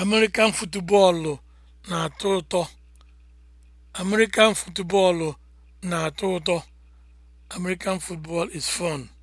American futubọọlụ na-atọ ụtọ. American football na-atọ ụtọ. American football is fun.